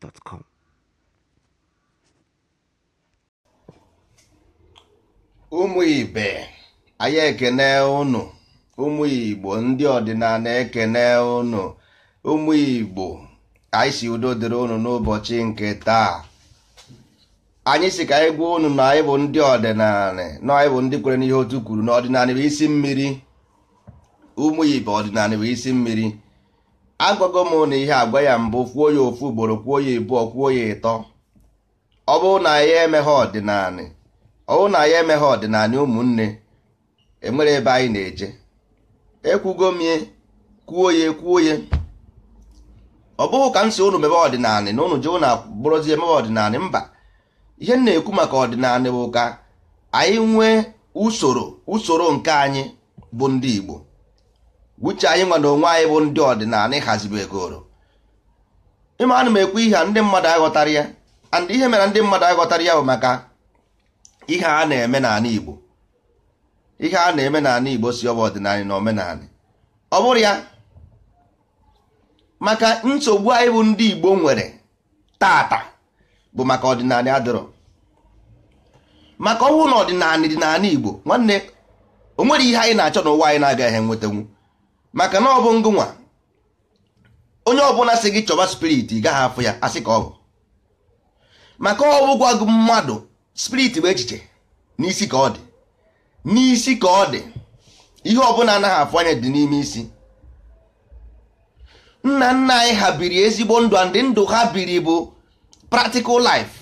gmail.com. ụmụ ibe anyị ekene ụnụ ụmụ igbo ndị ọdịnala ekene ụnụ ụmụ igbo anyị si udo dịrị ụnụ n'ụbọchị nke taa anyị si ka anyị gwa ụnụ na anyị bụ ndị ọdịnala na anyị bụ ndị kwere n'ihe otu kwuru na ọdịnala bụ isi mmiri ụmụ ibe ọdịnala bụ isi mmiri agwago m na ihe agwa ya mbụ kwuo ya ofu ugboro kwuo ya ịbụọ kwuo ya ịtọ ọ bụrụ na ya emeghe ọdịnanị ọ bụrụ na ya emeghe ọdịnanị ụmụnne enwere ebe anyị na-eje ekwugo m kwuo ya kwuo ya ọ bụghị ka m si unu mebe ọdịnanị na ụnụ je na bụrụzie emebe ọdịnanị mba ihe m na-ekwu maka ọdịnanị bụ ka anyị nwee usoro usoro nke anyị bụ ndị Igbo uche anyị nwa na onwe anyị bụ ndị ọdịnala egoro ime ana m ekwu ihe a ndị mmadụ aghọtara ya and ihe mere ndị mmadụ aghọtara ya bụ maka ihe a na-eme n'ala Igbo ihe a na-eme n'ala Igbo si ọbụ ọdịnala na omenala ọ bụrụ ya maka nsogbu anyị bụ ndị Igbo nwere tata bụ maka ọdịnala adịrọ maka ọnwụ na ọdịnala dị n'ala Igbo nwanne o nwere ihe anyị na-achọ n'ụwa anyị na-agaghị enwetanwu maka na ọ bụ ngụnwa onye ọbụla si gị chọba spirit ị gaghị afụ ya asị ka ọ bụ maka ọ bụgwa mmadụ spirit bụ echiche n'isi ka ọ dị n'isi ka ọ dị ihe ọbụla anaghị afụ anya dị n'ime isi nna nna anyị ha biri ezigbo ndụ ndị ndụ ha biri bụ practical life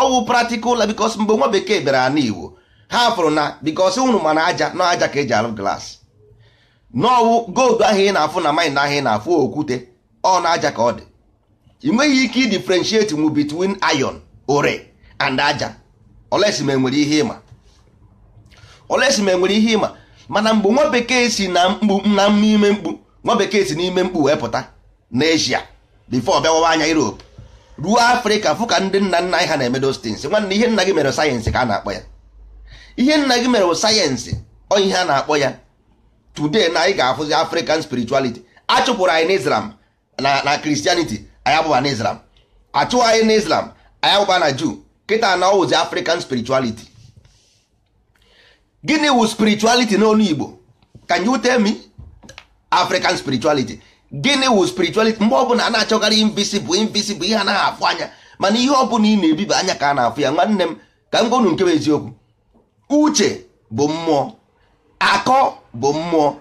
ọwụ practical life because mgbe nwa bekee bịara n'Igbo ha fụrụ na because unu mana aja na aja ka eji arụ glas n'ọwụ gold ahụ ị na-afụ na mind ahụ ị na-afụ okwute ọ na aja ka ọ dị ị nweghị ike differentiate mu between ayon ore and aja olesi ma enwere ihe ịma enwere e ihe ịma mana mgbe nwa bekee si na mkpu na ime mkpu nwa bekee si n'ime mkpu wee pụta n'Asia before bịawawa anya Europe ruo Afrịka fụ ka ndị nna nna anyị ha na-emedo stins nwanne ihe nna gị mere sayensị ka a na-akpọ ya ihe nna gị mere sayensị ọ ihe a na-akpọ ya today na anyị ga-afụzi african spirituality achụpụrụ anyị na na christianity anyị abụba na islam achụwa anyị na islam anyị abụba na jew kịta na ọwụzi african spirituality gịnị wụ spirituality n'olu igbo can you tell me african spirituality gịnị wu spirituality mgbe ọbụla a na bụ invisible invisible ihe anaghị afụ anya mana ihe bụla ị na-ebiba anya ka a na-afụ ya nwanne m ka m gonu nke bụ eziokwu uche bụ mmụọ akọ bụ mmụọ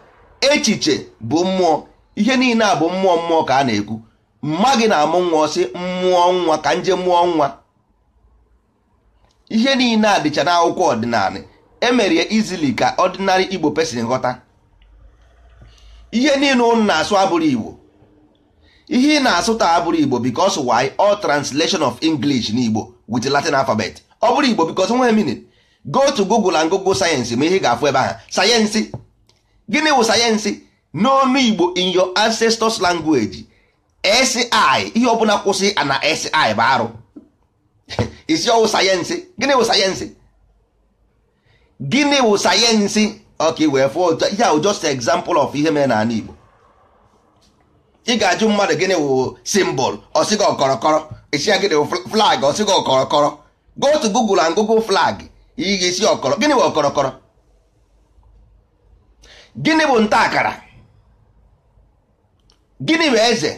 echiche bụ mmụọ ihe niile a bụ mmụọ mmụọ ka a na-ekwu mma gị na-amụ nwa ọsị mmụọ nwa ka nje mmụọ nwa ihe niile a dịcha n'akwụkwọ ọdịnala emerie izili ka ọdịnarị igbo pesin ghọta ihe niile ụnụ na-asụ abụrụ igbo ihe ị na-asụ taa abụrụ igbo because why all translation of english n'igbo with latin alphabet ọ bụrụ igbo because nwe meaning go to google and google sayensị ma ihe ị ga-afụ ebe ahụ sayensị gịnị wụ sayensị n'ọnụ igbo in your ancestors language si ihe ọbụla kwụsị ana si bụ arụ isi ọwụ sayensị gịnị wụ sayensị gịnị wụ sayensị ọka wee fụọ ihe ahụ just example of ihe mere n'ala igbo ị ga-ajụ mmadụ gịnị wụ symbol ọsịga ọkọrọkọrọ isi ya gịnị wụ flag ọsịga ọkọrọkọrọ go to google and google flag ị ga-esi ọkọrọ gịnị wụ ọkọrọkọrọ gịnị bụ nta akara gịnị bụ eze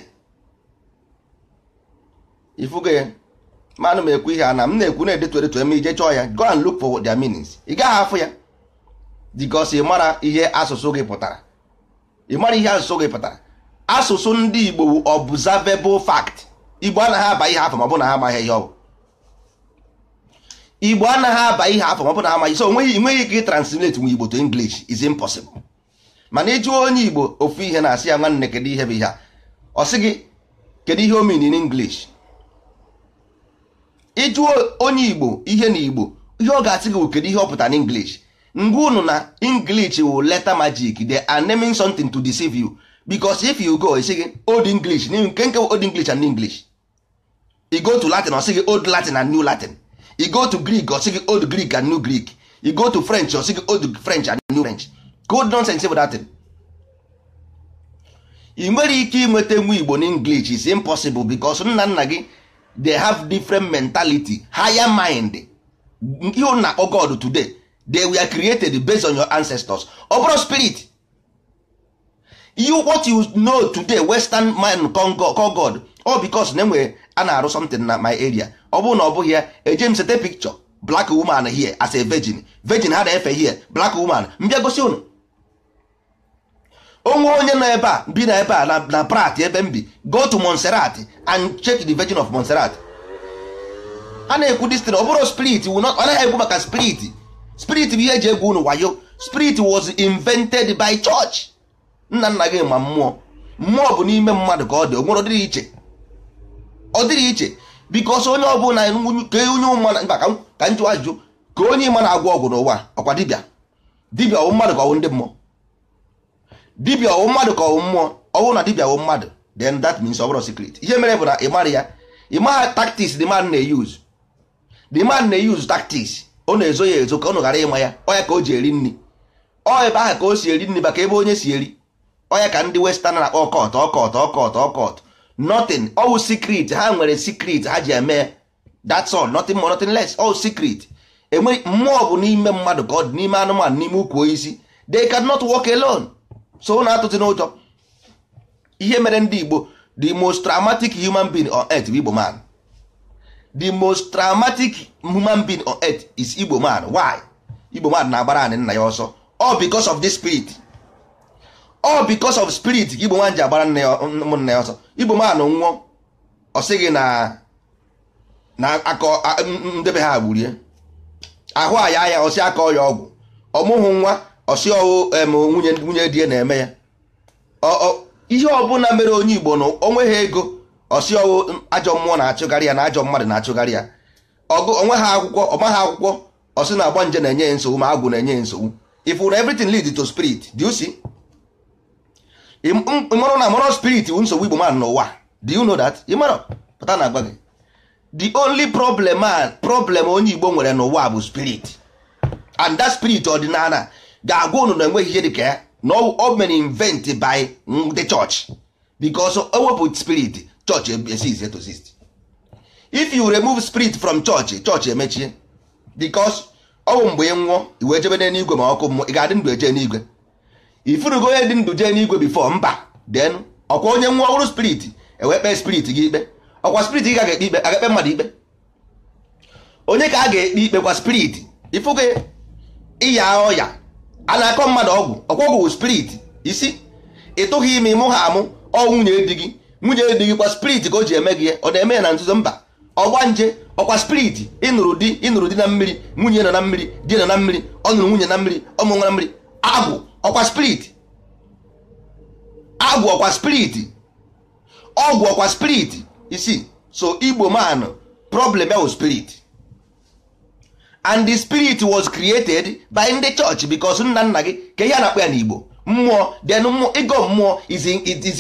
ifugo ya manụ m ekwu ihe ana, m na-ekwu na-edetu edetu eme ije chọọ ya go and look for their meanings ị gaghị afụ ya because ị mara ihe asụsụ gị pụtara ị mara ihe asụsụ gị pụtara asụsụ ndị Igbo bụ observable Igbo anaghị aba ihe afọ ma na ha amaghị ihe ọ bụ Igbo anaghị aba ihe afọ ma ọ bụ na ha amaghị so nweghị ike translate nwe Igbo to English is impossible mana iju e onye igbo ofu ihe na-asị ya nwanne kedu ihe bụ ihe a ọ sị gị kedu ihe o mean in English ịjụọ onye igbo ihe na igbo ihe ọ ga-asị gị bụ kedu ihe ọ pụta na English ngwa unu na English wụ letter magic they are naming something to deceive you because if you go isi gị old English nke nke old English and English you go to Latin ọ sị gị old Latin and new Latin you go to Greek ọ sị gị old Greek and new Greek you go to French ọ sị gị old French and new French good nonsense bụ datin ị nwere ike inweta nwa igbo na english is impossible because nna nna gị they have different mentality higher mind ihe na-akpọ oh god today they were created based on your ancestors ọ bụrụ spirit you what you know today western mind call god all because na enwere a na-arụ something na my area ọ bụrụ na ọ bụghị ya eje m sete picture black woman here as a virgin virgin ha na-efe here black woman mbịa gosi ụnụ onwe onye nọ ebe a bi na ebe a na prat ebe m bi go to Montserrat and check the Virgin of Montserrat a na-ekwu destin ọ bụrụ spirit ọ naghị ekwu maka spirit spirit bụ ihe eji egwu unu wayo spirit was invented by church nna nna gị ma mmụọ mmụọ bụ n'ime mmadụ ka ọ dị onwere ọdịrị iche ọ dịrị iche bikos onye ọ bụla ka onye ụma ka njụ ajụjụ ka onye ịma na-agwọ ọgwụ n'ụwa ọkwa dibịa dibịa ọ bụ mmadụ ka ọ ndị mmụọ dibia ọwụ mmadụ ka ọwụ mmụọ ọ na dibia wụ mmadụ then that means ọ bụrụ secret ihe mere bụ na ị mara ya ị maha tactics the man na-eyuzu the man na-eyuzu tactics ọ na-ezo ya ezo ka ọ ghara ịma ya ọya ka o ji eri nri ọ ebe aha ka o si eri nri maka ebe onye si eri ọya ka ndị western na-akpọ ọkọt ọkọt ọkọt ọkọt nothing ọwụ secret ha nwere secret ha ji eme that's all nothing more nothing less all secret enwe mmụọ bụ n'ime mmadụ ka ọ dị n'ime anụmanụ n'ime ukwu isi they cannot walk alone so ụnụ atụtụ n'ụjọ ihe mere ndị Igbo the most traumatic human being on earth bụ Igbo man the most traumatic human being on earth is Igbo man why Igbo man na-agbara anyị nna ya ọsọ all because of this spirit all because of spirit Igbo man ji agbara ụmụnna ya ọsọ Igbo man nwụọ ọ sịghị na na akọ ndebe ha gburie ahụ aya ya ọsị aka ọya ọgwụ ọmụhụ nwa ọsị nwunye nwunye di ya na-eme ya ihe ọbụla mere onye igbo na ha ego ọsị ọwụ ajọ mmụọ na-achụgharị ya na ajọ mmadụ na-achụgharị ya ọgụ onwe ha akwụkwọ ọma ha akwụkwọ ọsị na-agba nje na-enye ya nsogbu ma agwụ na-enye ya nsogbu ifu na everything lead to spirit do you see ịmụrụ na mụrụ spirit wu nsogbu igbo mmadụ n'ụwa do you know that ịmụrụ pụta na agwa gị the only problem problem onye igbo nwere n'ụwa bụ spirit and that spirit ọdịnala ga-agwa unu na enweghị ihe dị ka ya na ọ mere invent by the church because ewepụ spirit church cease to exist e if you remove spirit from church church emechie because ọ bụ mgbe ị nwụọ iwe jebe n'eluigwe ma ọkụ mmụọ ị ga-adị ndụ eje n'igwe ifurugo onye dị ndụ jee n'igwe bifo mba then ọkwa onye nwụọ ọhụrụ spirit ewee kpee spirit gị ikpe ọkwa spirit gị ga-ekpe ikpe aga-ekpe mmadụ ikpe onye ka a ga-ekpe ikpe kwa spirit ifugo ịya ọya a na-akọ mmadụ ọgwụ ọgwụgwụ spirit isi tụghị ime ịmụ ha amụ ọ nwunye di gị nwunye di gị kwa spirit ka o ji eme gị ya ọ na-eme ya na nzuzo mba ọgba nje ọkwa spirit ịnụrụ di ịnụrụ di na mmiri nwunye nọ na mmiri di nọ na mmiri ọ nụrụ nwunye na mmiri ọmụ nwa na mmiri agwụ ọkwa spirit agwụ ọkwa spirit ọgwụ ọkwa spirit isi so igbo manụ problem ya wụ spirit and the spirit was created by ndị church because nna nna gị ka ihe a na-akpọ ya n'Igbo mmụọ then ịgọ mmụọ is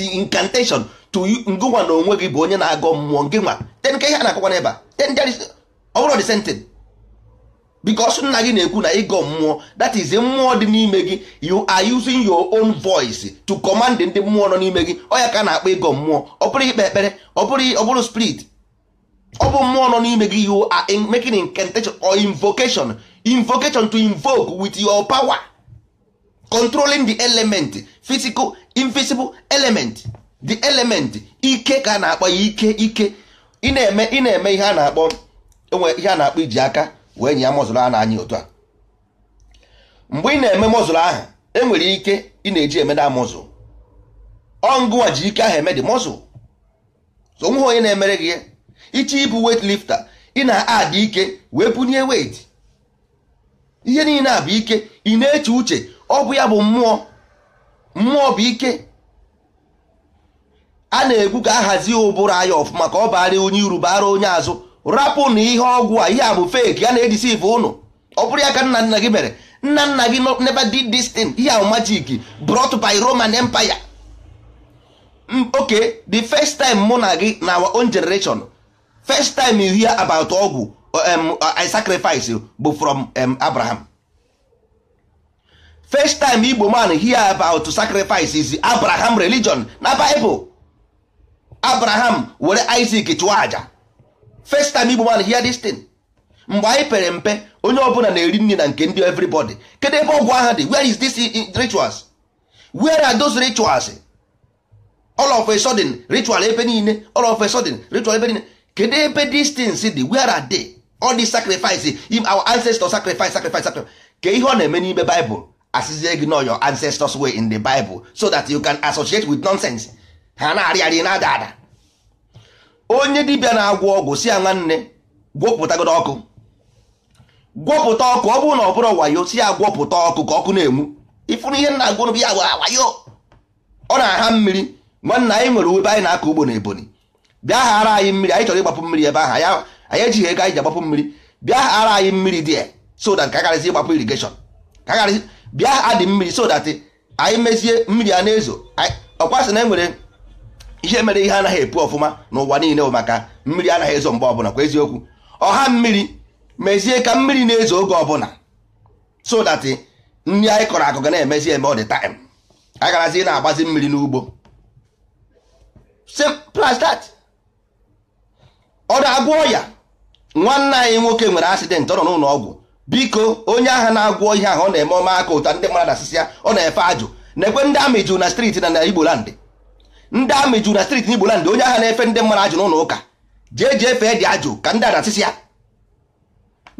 incantation to ngụnwa na onwe gị bụ onye na-agọ mmụọ nke nwa then ka ihe a na-akọkwa n'ebe a the same because nna gị na-ekwu na ịgọ mmụọ that is mmụọ dị n'ime gị you are using your own voice to command ndị mmụọ nọ n'ime gị ọ ya ka a na-akpọ ịgọ mmụọ ọ bụrụ ikpe ekpere ọ bụrụ spirit ọ bụ mmụọ nọ n'ime gị you are making incantation or invocation invocation to invoke with your power controlling the element physical invisible element the element ike ka a na-akpọ ya ike ike ị na-eme ị na-eme ihe a na-akpọ enwe ihe a na-akpọ iji aka wee nye ya mọzụlụ a na-anya otu a mgbe ị na-eme mọzụlụ ahụ enwere ike ị na-eji eme na mọzụl ọngụwa ji ike ahụ eme dị mọzụl so nweghị onye na-emere gị ya iche ibụ wet lifta ị na-adị ike wee bunye wet ihe niile a bụ ike ị na-eche uche ọ bụ ya bụ mmụọ mmụọ bụ ike a na-ekwu ka ahazi ụbụrụ anya ọfụma ka ọ baara onye iru bara onye azụ rapụ na ihe ọgwụ a ihe a bụ fake a na-ejisi ife ụnụ ọ bụrụ ya ka nna nna gị mere nna nna gị never did this thing ihe ahụ magic brought by Roman Empire okay the first time mụ na gị na our own generation first time you hear about ọgwụ uh, um, uh, I sacrifice bụ from um, Abraham first time Igbo man hear about sacrifice is Abraham religion na Bible Abraham were Isaac chụọ aja first time Igbo man hear this thing mgbe anyị pere mpe onye ọbụla na-eri nri na nke ndị everybody kedu ebe ọgwụ ahụ dị where is this rituals where are those rituals all of a sudden ritual ebe niile all of a sudden ritual ebe niile kedu ebe these things dị where are they all the sacrifice our ancestors sacrifice sacrifice sacrifice ka ihe ọ na-eme n'ime Bible asịzie gị nọ your ancestors way in the Bible so that you can associate with nonsense ha na arị na-ada ada onye dibịa na-agwọ ọgwụ si ya nwanne gwọpụtagodo ọkụ gwọpụta ọkụ ọ bụrụ na ọ bụrụ wayo si ya gwọpụta ọkụ ka ọkụ na-enwu ịfụrụ ihe na-agwụrụ bụ ya wayo ọ na-aha mmiri nwanne anyị nwere ube anyị na-akọ ugbo na Ebonyi bịa ghara anyị mmiri anyị chọrọ ịgbapụ mmiri ebe ahụ anyị ejighị ego anyị ji agbapụ mmiri bịa ghara anyị mmiri dị ya so that ịgbapụ irigeshọn. ka karịsị bịa adị mmiri so that anyị mezie mmiri a na-ezo ọkwasị na e nwere ihe mere ihe anaghị epu ọfụma n'ụwa niile maka mmiri anaghị ezo mgbe ọbụla kwa eziokwu ọha mmiri mezie ka mmiri na-ezo oge ọbụla so that nri anyị kọrọ akụ ga na-emezi eme ọ dị time agarazi na-agbazi mmiri n'ugbo simple ọ na-agwọ ọya nwanne anyị nwoke nwere asidenti ọ nọ n'ụlọ ọgwụ biko onye agha na-agwọ ihe ahụ ọ na-eme ọma aka ụta ndị mmadụ asịsị ọ na-efe ajụ na-ekwe ndị amị jụ na steeti na igbolandị ndị amị jụ na steeti na igbolandị onye agha na-efe ndị mmadụ ajụ n'ụlọ ụka jee jee fee dị ajụ ka ndị a na-asịsị ya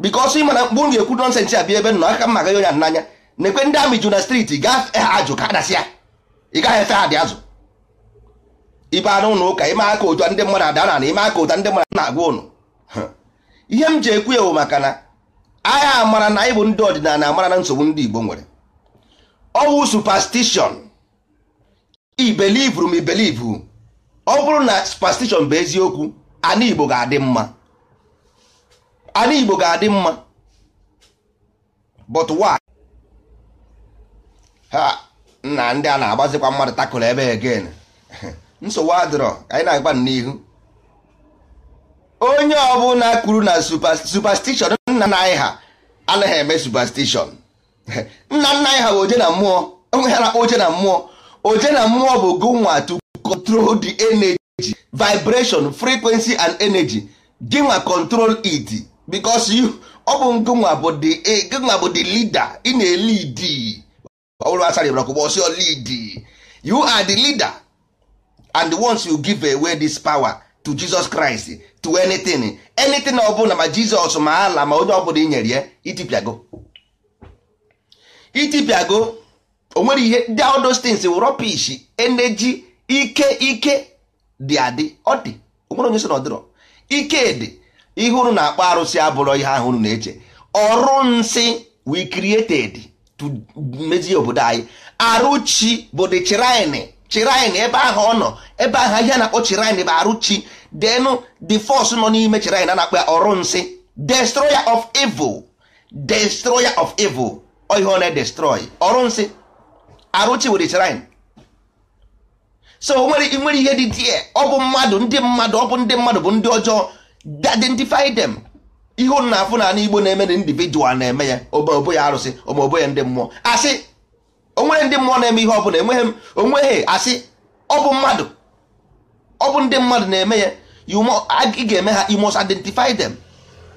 bikọsọ ị mkpụrụ ga-ekwu nọnsensị a bịa ebe nọ aka mma ga onye a n'anya na-ekwe ndị amị jụ na steeti gaa fee ajụ ka adasị ị gaghị efe ha dị azụ ibe anụ ụlọ ụka ime aka ụta ndị mmadụ ada na ime aka ụta ndị mmadụ na-agwa ụnụ ihe m ji ekwu ewu maka na agha amara na ịbụ ndị ọdịnala amara na nsogbu ndị Igbo nwere ọwụ superstition ibelivru m ibelivu ọ bụrụ na superstition bụ eziokwu ana Igbo ga-adị mma Igbo ga-adị mma but why ha na ndị a na-agbazikwa mmadụ takụrụ ebe again nsogbu adịrọ anyị na-agba n'ihu onye ọbụla kwuru na superstition nna nna anyị ha anaghị eme superstition nna nna anyị ha bụ oje na mmụọ onwe ha na-akpọ oje na mmụọ oje na mmụọ bụ gụnwa to control the energy vibration frequency and energy gịnwa control it because you ọ bụ gụnwa bụ the eh, bụ the leader ị na-elidi ọ bụrụ asara ịbara kwụgbọ ọsịọ you are the leader and once you give away this power to Jesus Christ to anything anything ọ bụla ma Jizọs ma ala ma onye ọbụla i nyere ya itipịago itipịago o ihe ndị all those eneji ike ike dị adị ọ dị o nwere onye so na ọdịrọ ike dị ihe unu na-akpọ arụsị abụrọ ihe ahụ unu na-eche ọrụ nsị we created to mezie obodo anyị arụchi bụ the shrine chirin ebe ahụ ọ nọ ebe ahụ ihe na-akpọ chirain bụ arụ chi the force nọ n'ime chirin a na-akpọ ya ọrụ nsị destroyer of evil destroyer of evil ihe ọ na-edestroy ọrụ nsị arụchi chi were so nwere nwere ihe dị dị ọ bụ mmadụ ndị mmadụ ọ bụ ndị mmadụ bụ ndị ọjọọ identify them ihe ụnụ na-afụ na ala igbo na-eme na individual na-eme ya obobo ya arụsị obobo ya ndị mmụọ asị onwere ndị mmụọ na-eme ihe ọbụla enweghị m onweghị asị ọ bụ mmadụ ọ ndị mmadụ na-eme ya ị ga-eme ha you identify them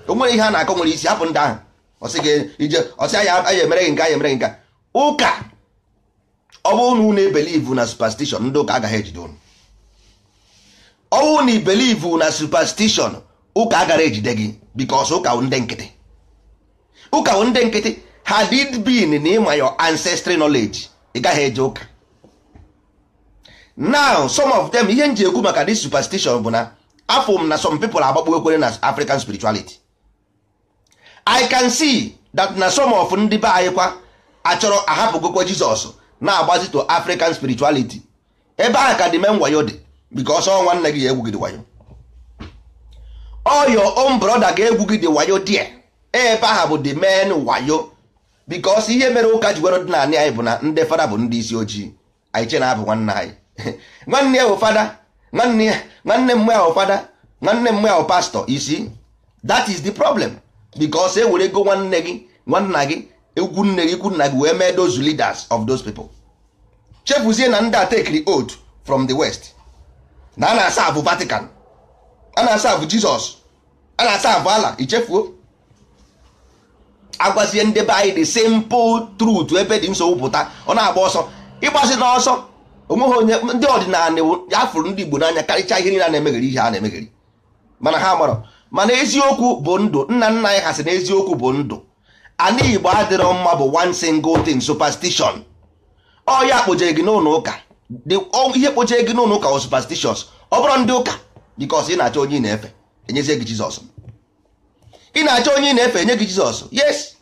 onwere ihe a na-akọ nwere isi hapụ ndị ahụ ọsị ya emere gị nke ya emere gị nke ụka ọ bụrụ na unu ebelivu na superstition ndị ụka agaghị ejide unu ọ bụrụ na ibelivu na superstition ụka agaghị ejide gị because ụka ndị nkịtị ụka ndị nkịtị had it been na ịma your ancestry knowledge ị gaghị eje ụka now some of them ihe nji ekwu maka this superstition bụ na afọ m na some people agbakpo ekwere na african spirituality i can see that na some of ndị be anyị kwa achọrọ ahapụgokwa jizọs na-agbazi to african spirituality ebe ahụ ka dị men wayo dị because ọ nwanne gị ga-egwu wayo all your own brother ga-egwu gị wayo die ebe ahụ bụ the men wayo bikos ihe mere ụka ji were ọdịnala anyị bụ na ndị fada bụ ndị isi ojii anyị che na abụ nwanne anyị nwanne ya bụ fada nwanne m ya bụ fada nwanne m ya bụ pastọ isi that is the problem bikos e were ego nwanne gị nwanna gị egwu nne gị ikwu e nna gị wee mee those leaders of those people chefuzie na ndị atekiri od from the west na a na-asa abụ vatican a na-asa abụ jizọs a na-asa abụ ala ichefuo agwazie ndị be anyị the simple trut ebe dị nsogbu pụta ọ na-agba ọsọ ịgbazi n'ọsọ onweghị onye ndị ọdịnala ya fụrụ ndị Igbo n'anya karịchaa ihe niile a na-emegheri ihe a na-emegheri mana ha marọ mana eziokwu bụ ndụ nna nna anyị ha sị na eziokwu bụ ndụ ana Igbo adịrọ mma bụ one single thing superstition ọ ya kpojere gị n'ụlọ ụka ihe kpojere gị n'ụlọ ụka o superstitions ọ bụrụ ndị ụka because ị na-achọ onye na-efe enyezie gị Jizọs ị na-achọ onye ị na-efe nye gị jizọs yes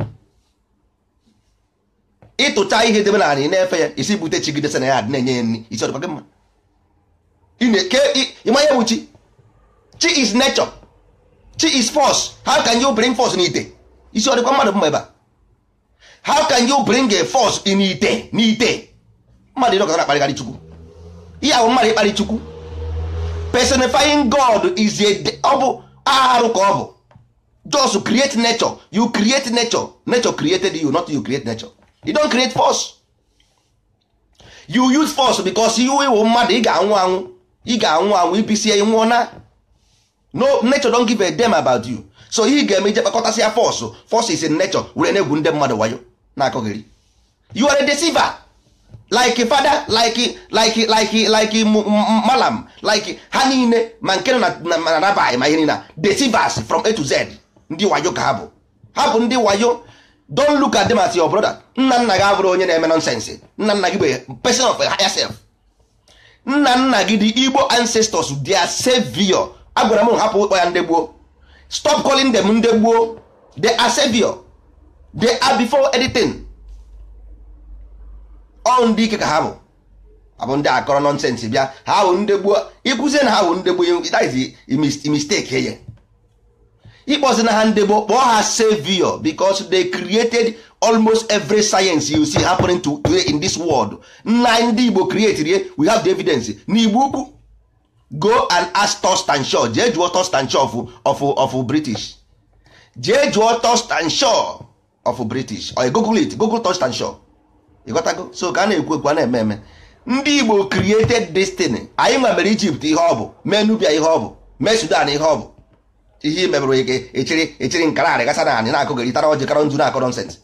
ịtụcha ihe debe na ị na-efe ya isi bute chi gidesa na ya adị na-enye ya nri isi ọdịkwa gị mma ịma ya bụ chi chi is nature chi is force how can you bring force n'ite isi ọdịkwa mmadụ mma ebe a how can you bring a force in ite n'ite mmadụ ịrọ na-akparịgharị chukwu ihe ahụ mmadụ ịkparị chukwu personifying god is ọ bụ arụ ka ọ bụ just create nature you create nature nature created you not you create nature you don't create force you use force because you iwu mmadụ ị ga-anwụ anwụ ị ga-anwụ anwụ ibisie nwụọ na no nature don't give a damn about you so ị ga-eme ije kpakọtasị ya force force is in nature were na-egwu ndị mmadụ wayo na-akọghịrị you are a deceiver like fada like like like like malam like ha niile ma nke na na nabaghị ma ihe niile deceivers from a to z ndị wayo ka ha bụ ha bụ ndị wayo don look at them as your brother nna nna gị abụrụ onye na-eme nonsense nna nna gị bụ person of a higher self nna nna gị dị igbo ancestors their savior agwara m hapụ ụkpọ ya ndegbuo stop calling them ndegbuo gboo asevio are savior editing are ọ ndị ike ka ha bụ abụ ndị akọrọ nonsense bịa ha bụ ndegbuo gboo ịkụzie na ha bụ ndị gboo that is mistake ye ịkpọzi na ha ndebo kpọọ ha savior because they created almost every science you see happening to, in this world nna ndị Igbo create we have the evidence n'Igbo ukwu go and ask Thurston Shaw jee jụọ Thurston of, of, of British jee jụọ Thurston Shaw of British or google it google Thurston Shaw ịghọtago so ka a na-ekwu ekwu a na-eme eme ndị Igbo created destiny anyị nwa mere Egypt ihe ọ bụ mee Nubia ihe ọ bụ mee Sudan ihe ọ bụ ihe imebere gị echiri echiri nkararị gasa na anị na-akụgịrị tara ọjị karọ nzu na-akọ nọnsens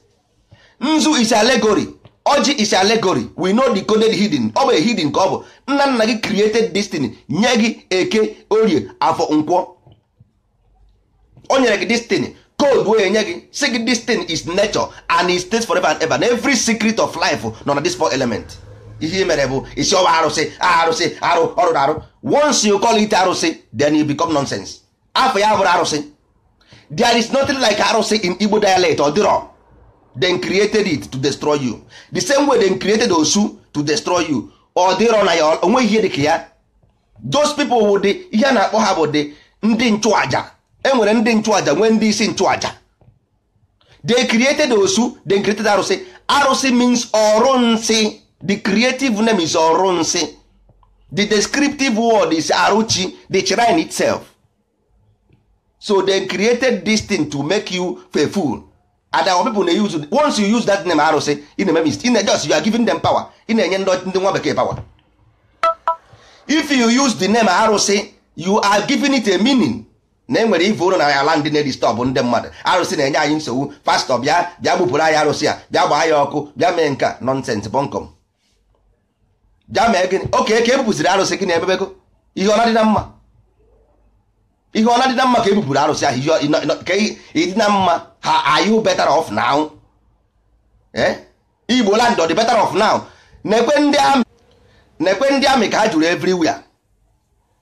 nzu is allegory ọjị is allegory we know the coded hidden ọ bụ hidden ka ọ bụ nna nna gị created destiny nye gị eke orie afọ nkwọ o nyere gị destiny code wee nye gị si gị destiny is nature and it stays forever and ever na every secret of life nọ na this element ihe mere bụ isi ọwa arụsị arụsị arụ ọrụ na arụ once you call it arụsị then you become nonsense afọ ya bụrụ arụsị there is nothing like arụsị in Igbo dialect ọ dịrọ then created it to destroy you the same way they created osu to destroy you ọ dịrọ na ya onweghị ihe dịka ya those people wụ dị ihe na-akpọ ha bụ dị ndị nchụaja enwere ndị nchụaja nwee ndị isi nchụaja they created osu they created arụsị arụsị means ọrụnsị the creative name is ọrụnsị the descriptive word is arụchi the shrine itself so they created this thing to make you a fool and our people na use once you use that name arụsị ị na-eme mistake na just you are giving them power ị na-enye ndị nwa bekee power if you use the name arụsị you are giving it a meaning na enwere ife ụlọ na ala ndị na-edistọb ndị mmadụ arụsị na-enye anyị nsogbu pastọ bịa bịa gbupụrụ anyị arụsị a bịa gbaa ya ọkụ bịa mee nka nọnsens bọnkọm bịa mee gịnị oke ka e bupụsiri arụsị gị na-emebego ihe ọ dị na mma ihe ọ na-adị na mma ka ebupụrụ arụsị ahụ ka ịdị na mma ha ayụ better off now eh? igbo land ọ dị better off now nekwe ndị amị nekwe ndị amị ka ha jụrụ everywhere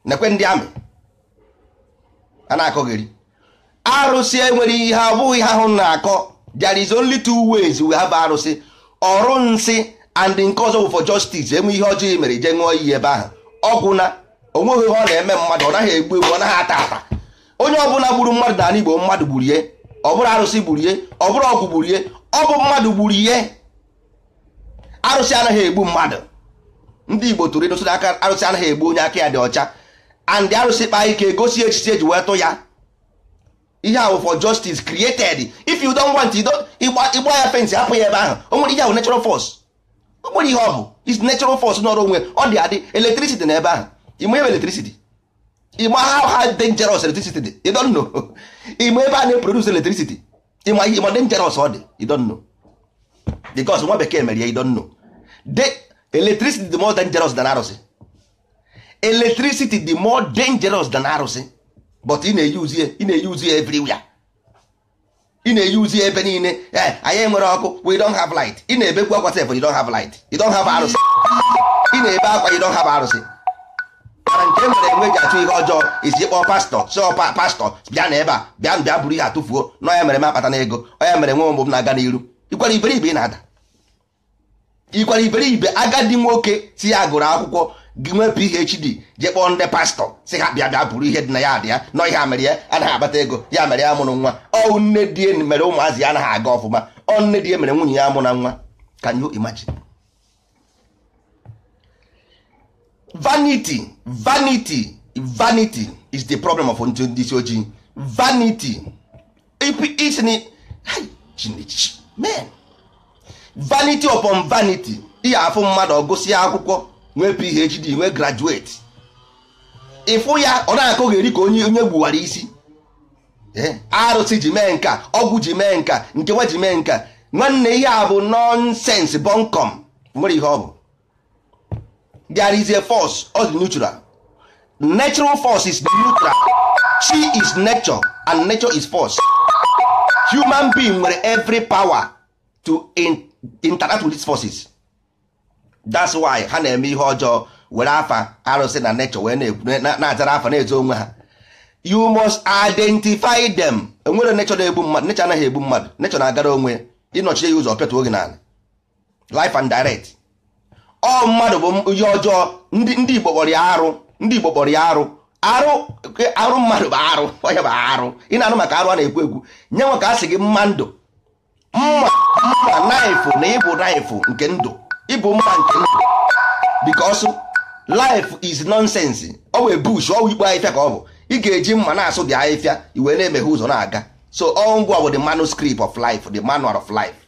nekwe ndị amị a na-akọgheri arụsị enwere ihe abụghị ihe ahụ na-akọ there is only two ways we have arụsị ọrụ nsị and nke ọzọ for justice enwe ihe ọjọọ e mere je ṅụọ iyi ebe ahụ ọgwụ na onweghị ihe ọ na-eme mmadụ ọ naghị egbu egbu ọ naghị ata ata onye ọbụla gburu mmadụ na ala igbo mmadụ gburu ihe ọ bụrụ arụsị gburu ihe ọ bụrụ ọgwụ gburu ihe ọ bụ mmadụ gburu ihe arụsị anaghị egbu mmadụ ndị igbo tụrụ ịdụsị aka arụsị anaghị egbu onye aka ya dị ọcha and arụsị kpaa ike gosi echiche eji wee tụ ya ihe ahụ for justice created if you don't want ịgba ya fensị apụ ya ebe ahụ o nwere ihe ahụ natural force o nwere ihe ọ bụ is natural force n'ọrụ onwe ọ dị adị electricity na ebe ahụ ịma ebe electricity ịma how how dangerous electricity dị you don't know ịma ebe a na-eproduce electricity ịma ihe ịma dangerous ọ dị don don't know because nwa bekee mere ya you don't know De electricity dị more dangerous than arụsị electricity dị more dangerous than arụsị but ị na-eyuzi ị na-eyuzi everywhere ị na-eyuzi ebe niile eh, anyị nwere ọkụ we don't have light ị na-ebekwu akwa sef you don't have light you don't have arụsị ị na-ebe akwa you don't have arụsị ọbara nke e nwere enwe ji achụ ihe ọjọọ isi kpọọ pastọ sọ pastọ bịa na ebe a bịa bịa buru ihe atụfuo na ọya mere m akpata ego ọya mere nwa ụmụ m na-aga n'iru ikwara iberibe na-ada iberibe agadi nwoke si ya gụrụ akwụkwọ gị nwee phd jee kpọọ ndị pastọ si ha bịa bịa bụrụ ihe dị na ya adị ya nọ ihe a mere ya anaghị akpata ego ya mere ya mụrụ nwa ọ nne di mere ụmụazị ya anaghị aga ọfụma ọ nne di mere nwunye ya mụ na nwa can imagine vanity vanity vanity is the problem of ndị isi ojii vanity isini chinich men vanity upon vanity ihe afụ mmadụ ọgụsị akwụkwọ nwee phd nwee graduate ịfụ eh? ya ọ na eri ka onye onye gbuwara isi arụsị ji mee nka ọgwụ ji mee nka nkewa ji mee nka nwanne ihe a bụ nọnsens bọnkọm nwere ihe ọ bụ there is a force all the neutral natural force is neutral chi is nature and nature is force human being nwere every power to in, interact with these forces that's why ha na-eme ihe ọjọọ were afa arụsị na nature wee na-azara afa na-ezo onwe ha you must identify them enwere nature na-egbu mmadụ nature anaghị egbu mmadụ nature na-agara onwe ịnọchie ya ụzọ pịatuo gị n'ala life and direct ọ mmadụ bụ ihe ọjọọ ndị Igbo kpọrọ ya arụ ndị Igbo kpọrọ ya arụ arụ arụ mmadụ bụ arụ onye bụ arụ ị na arụ maka arụ a na-ekwu egwu nye nwe ka a sị gị mma ndụ mma mma naịfụ na ịbụ naịfụ nke ndụ ịbụ mma nke ndụ because life is nonsense ọ wee bush ọ ikpe ahịfịa ka ọ bụ ị ga-eji mma na-asụ dị ahịfịa iwe na-emeghe ụzọ na-aga so ọ ngwa bụ the manuscript of life the manual of life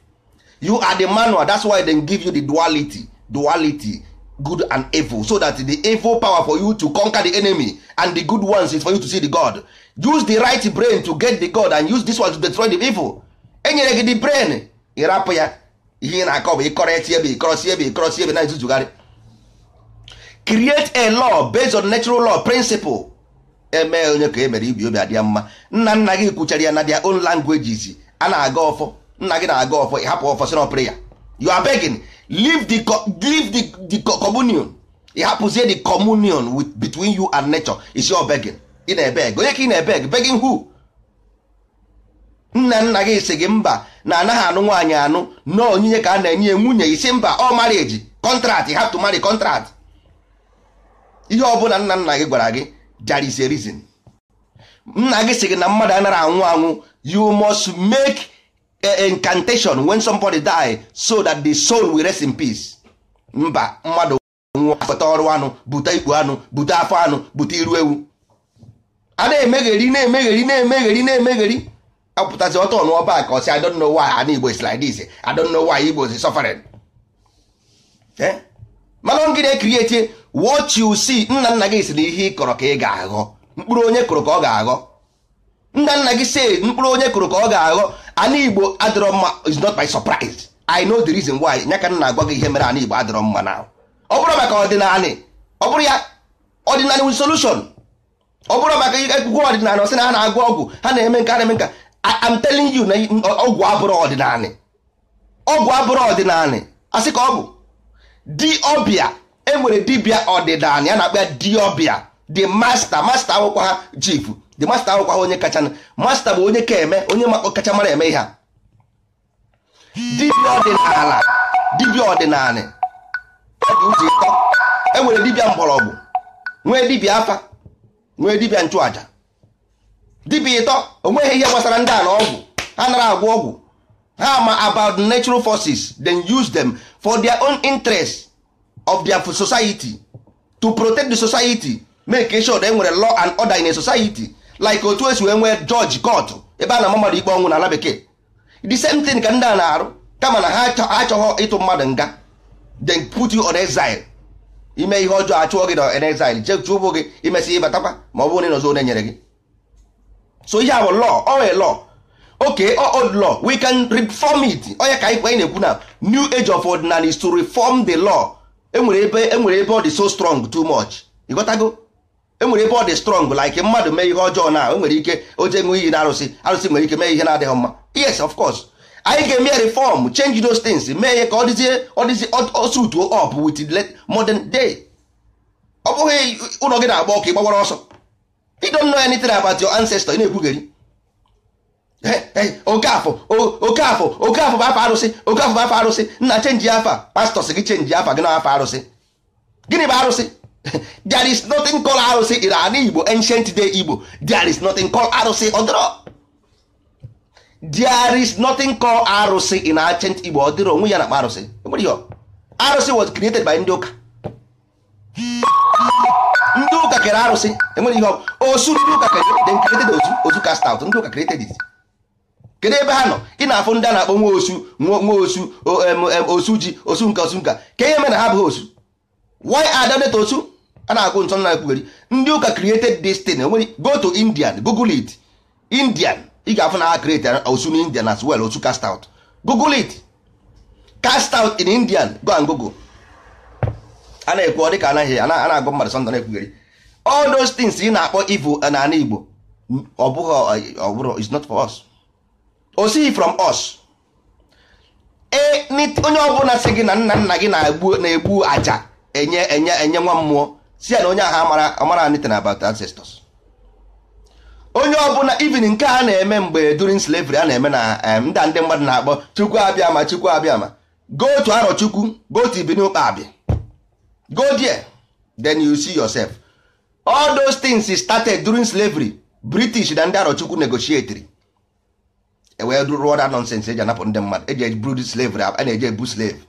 you are the manual that's why they give you the duality duality good and evil so that the evil power for you to conquer the enemy and the good ones is for you to see the god use the right brain to get the god and use this one to destroy the evil enyere gị the brain ịrapụ ya ihe ị na-akọ bụ ịkọrọ eti ebe ịkọrọsi ebe ịkọrọsi ebe na izuzugharị create a law based on natural law principle eme onye ka e mere ibi obi adịa mma nna nna gị kwuchara ya na their own languages a na-aga ọfọ nna gị na-aga ọfọ ịhapụ ọfọ si na ya you are begging leave the leave the, the communion ịhapụzie the communion with between you and nature is your begging ị na-ebeg onye ka ị na-ebeg begging who nna nna gị si gị mba na anaghị anụ nwaanyị anụ na onyinye ka a na-enye nwunye isi mba ọ marriage contract you have to marry contract ihe ọ ọbụla nna nna gị gwara gị there is a reason nna gị si gị na mmadụ anaghị anwụ anwụ you must make Eh, incantation when somebody die so that the soul will rest in peace mba mmadụ nwụọ ọrụ anụ bute ikpu anụ bute afọ anụ bute iru ewu a na-emegheri na-emegheri na-emegheri na-emegheri apụtazi ọtọ n'ọba ka ọsị I don't know why ana Igbo is like this I don't know why Igbo is suffering eh? mana ngị na-ekirieti what you see nna nna gị si na ihe ị kọrọ ka ị ga-aghọ mkpụrụ onye kụrụ ka ọ ga-aghọ nna nna gị si mkpụrụ onye kụrụ ka ọ ga-aghọ ana igbo adịrọ mma is not by surprise i know the reason why nyaka ka m na-agwa gị ihe mere ana igbo adịrọ mma na ọ bụrụ maka ọdịnala ọ bụrụ ya ọdịnali with solution ọ bụrụ maka ekwukwe ọdịnala ọsị na ha na-agụ ọgwụ ha na-eme nke ha na-eme nke am telling you na ọgwụ abụrụ ọdịnali ọgwụ abụrụ ọdịnala asị ka ọ bụ ọbịa enwere dibịa ọdịnali ya na-akpa ya ọbịa di masta masta akwụkwọ ha chief the master awụkwa onye kacha master bụ onye ka eme onye kacha mara eme ihe a dibịa ọdịnala dibịa ọdịnala dị ụtọ enwere dibịa mgbọrọgwụ nwee dibịa afa nwee dibịa nchụaja dibịa ịtọ onweghị ihe gbasara ndị ala ọgwụ ha nara agwọ ọgwụ ha ma about natural forces then use them for their own interest of their society to protect the society make sure that enwere law and order in a society like otu esi wee nwee jọji kọtụ ebe a na mmadụ ikpe ọnwụ n'ala bekee the same thing ka ndị a na-arụ kama na ha achọghọ ịtụ mmadụ nga then put you on exile ime ihe ọjọọ achụọ gị na exile chechụ ụgbụ gị ị ịbatakwa ma ọ bụrụ na ịnọzọ onye nyere gị so ihe bụ lọ owe law okay old lọ we can reform it onye ka anyị na-ekwu na new age of ordinary is to reform the law enwere ebe enwere ebe ọ dị so strong too much ịghọtago enwere ebe ọ dị strong like mmadụ mee ihe ọjọọ na enwere ike oje ṅụọ iyi na arụsị arụsị nwere ike mee ihe na-adịghị mma yes of course anyị ga-eme ya reform change those things mee ihe ka ọ dịzie ọ dịzie osutuo up modern day ọ bụghị ụlọ gị na-agba ọkụ ịgbawara ọsọ you don't know anything about your ancestor ị na-ekwugheri okafọ okafọ okafọ bụ afa arụsị okafọ bụ afa arụsị nna chenji afa pastọs gị chenji afa gị na afa arụsị gịnị bụ arụsị there is nothing called arụsị iran igbo ancient day igbo there is nothing called arụsị ọdịrọ there is nothing called arụsị in ancient igbo ọdịrọ onwe ya na arụsị arụsị was created by ndị ụka ndị ụka kere arụsị enwere ihe osu ndị ụka kere created ozu ozu cast out ndị ụka created it kedu ebe ha nọ ị na-afụ ndị a na-akpọ nwa osu nwa osu osu ji osu nka osu nka ka ihe mere na ha abụghị osu why are they osu a na-akwụ nsọ na ekwugeri ndị ụka created this thing enwere go to indian google it indian ị ga-afụ na ha create osu na indian as well osu cast out google it cast out in indian go and google a na-ekwu ọ dị ka anaghị a na-agụ mmadụ sọndọ na-ekwugeri all those things ị na-akpọ ivo n'ala igbo ọ bụghị ọ bụrụ is not for us o sighi from us e, onye ọbụla sị gị na nna nna gị na-egbu aja enye enye enye nwa mmụọ si na onye agha amara anything about ancestors onye ọbụla even nke a na-eme mgbe during slavery a na-eme na ndị ndị mmadụ na-akpọ chukwu abịa ma chukwu abịa ma go to arọ chukwu go to ibini abịa go there then you see yourself all those things started during slavery british na ndị arọ chukwu e wee rụọ that eji anapụ ndị mmadụ eji eburu slavery a na-eji ebu slave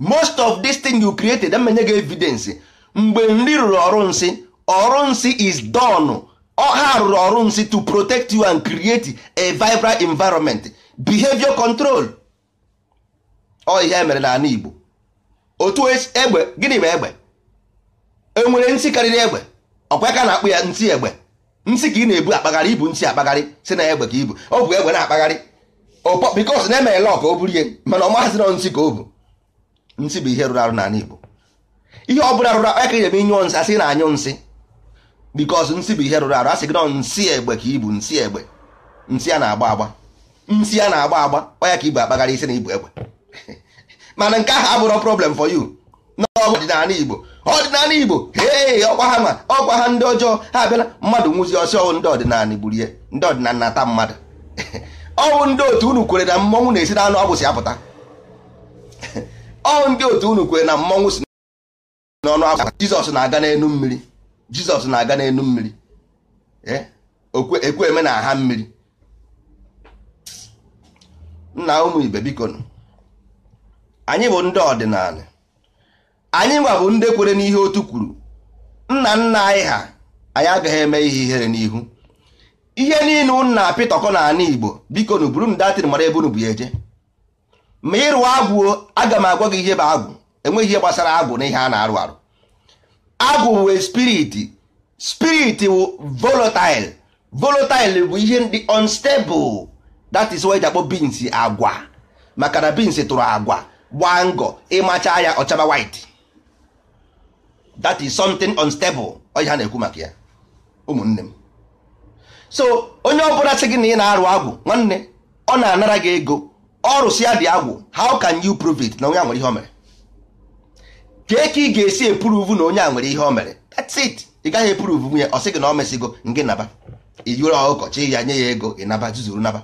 most of this thing you created amenye gị evidence mgbe nri rụrụ ọrụ nsị ọrụ nsị is done ọha rụrụ ọrụ nsị to protect you and create a vibrant environment behavior control ọ ihe e mere n'ala Igbo otu e egbe gịnị bụ egbe enwere nsị karịrị egbe ka na-akpụ ya nsị egbe nsị ka ị na-ebu akpagharị ibu nsị akpagharị si na egbe ka ibu ọ bụ egbe na-akpagharị bikos na-eme ka o ihe mana ọ maazị nọ nsị ka o bụ nsi bụ ihe rụrụ arụ n'ala Igbo ihe ọ bụla rụrụ arụ aka ebe inyụ nsị asị na anyụ nsị bikos nsị bụ ihe rụrụ arụ asị gị nọ nsị egbe ka ibu nsị egbe nsị a na-agba agba nsị a na-agba agba ọya ka ibu akpagharị isi na ibu egbe mana nke ahụ abụrọ problem for you n'ọdịnala Igbo ọdịnala Igbo ee ọkwa ha ma ọkwa ha ndị ọjọọ ha abịala mmadụ nwụzi ọsị ọwụ ndị ọdịnala gburu ndị ọdịnala mmadụ ọwụ ndị otu unu kwere na mmọnwụ na-esi na anụ si apụta ọ ndị otu unu kwere na mmọnwụ si n'ọnụ akwa jizọs na-aga n'elu mmiri jizọs na-aga n'elu mmiri e, ekwe eme na aha mmiri nna ụmụ ibe biko anyị bụ ndị ọdịnala anyị nwa bụ ndị kwere n'ihe otu kwuru nna nna anyị ha anyị agaghị eme ihe ihere n'ihu ihe niile nna pitọkọ na ana igbo biko nu buru datịrị mara ebe unu bụ ya eje ma ịrụ agwụ aga m agwa gị ihe bụ agwụ enweghị ihe gbasara agwụ na ihe a na-arụ arụ agwụ bụ spirit spirit bụ volatil volatil bụ ihe ndị unstable that is why e akpọ beans agwa maka na beans tụrụ agwa gbaa ngọ ịmacha ya ọchaba white that is something unstable ọ ha na-ekwu maka ya ụmụnne m so onye ọbụla sị gị na ị na-arụ agwụ nwanne ọ na-anara gị ego si ya dị agwụ how can you prove it na onye a nwere ihe o mere kee ka ị ga-esi epuruvu na onye a nwere ihe o mere that's it ị gaghị epuruvu nwunye ọ sị gị na ọ mesigo ngị naba ijuru ọkọchị ya nye ya ego naba zuzuru naba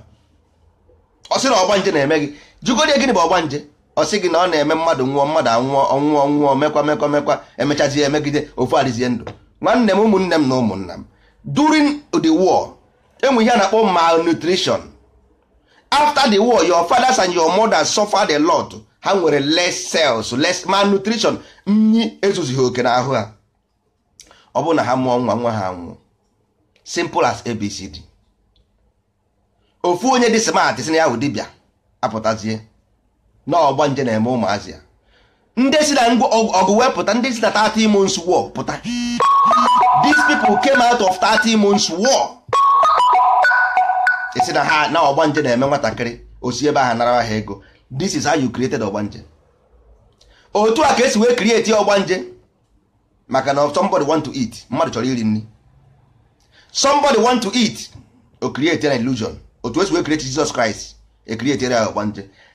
ọ sị na ọgbanje na-eme gị jugodi gịnị bụ ọgbanje ọ sị gị na ọ na-eme mmadụ nwụọ mmadụ anwụọ ọnwụọ nwụọ mekwa mekwa mekwa emechazi emegide ofu adịzie ndụ nwanne m ụmụnne m na ụmụnna m during the war enwe ihe a na-akpọ malnutrition after the war your fathers and your mothers suffered a lot ha nwere less cells less malnutrition nyi ezozighi oke n'ahụ ha ọ bụrụ na ha mụọ nwa nwa ha nwụọ simple as abcd ofu onye dị smart si na ya ahụ dibịa apụtazie na ọgba nje na-eme ụmụazị ya ndị si na ọgụ wee pụta ndị si na 30 months war pụta these people came out of 30 months war esi na ha na ọgbanje na-eme nwatakịrị osi ebe ahụ nara ha ego this is how you created ọgbanje otu a ka esi wee create ọgbanje maka na somebody want to eat mmadụ chọrọ iri nri somebody want to eat o create an illusion otu esi wee create Jesus Christ e create ya ọgbanje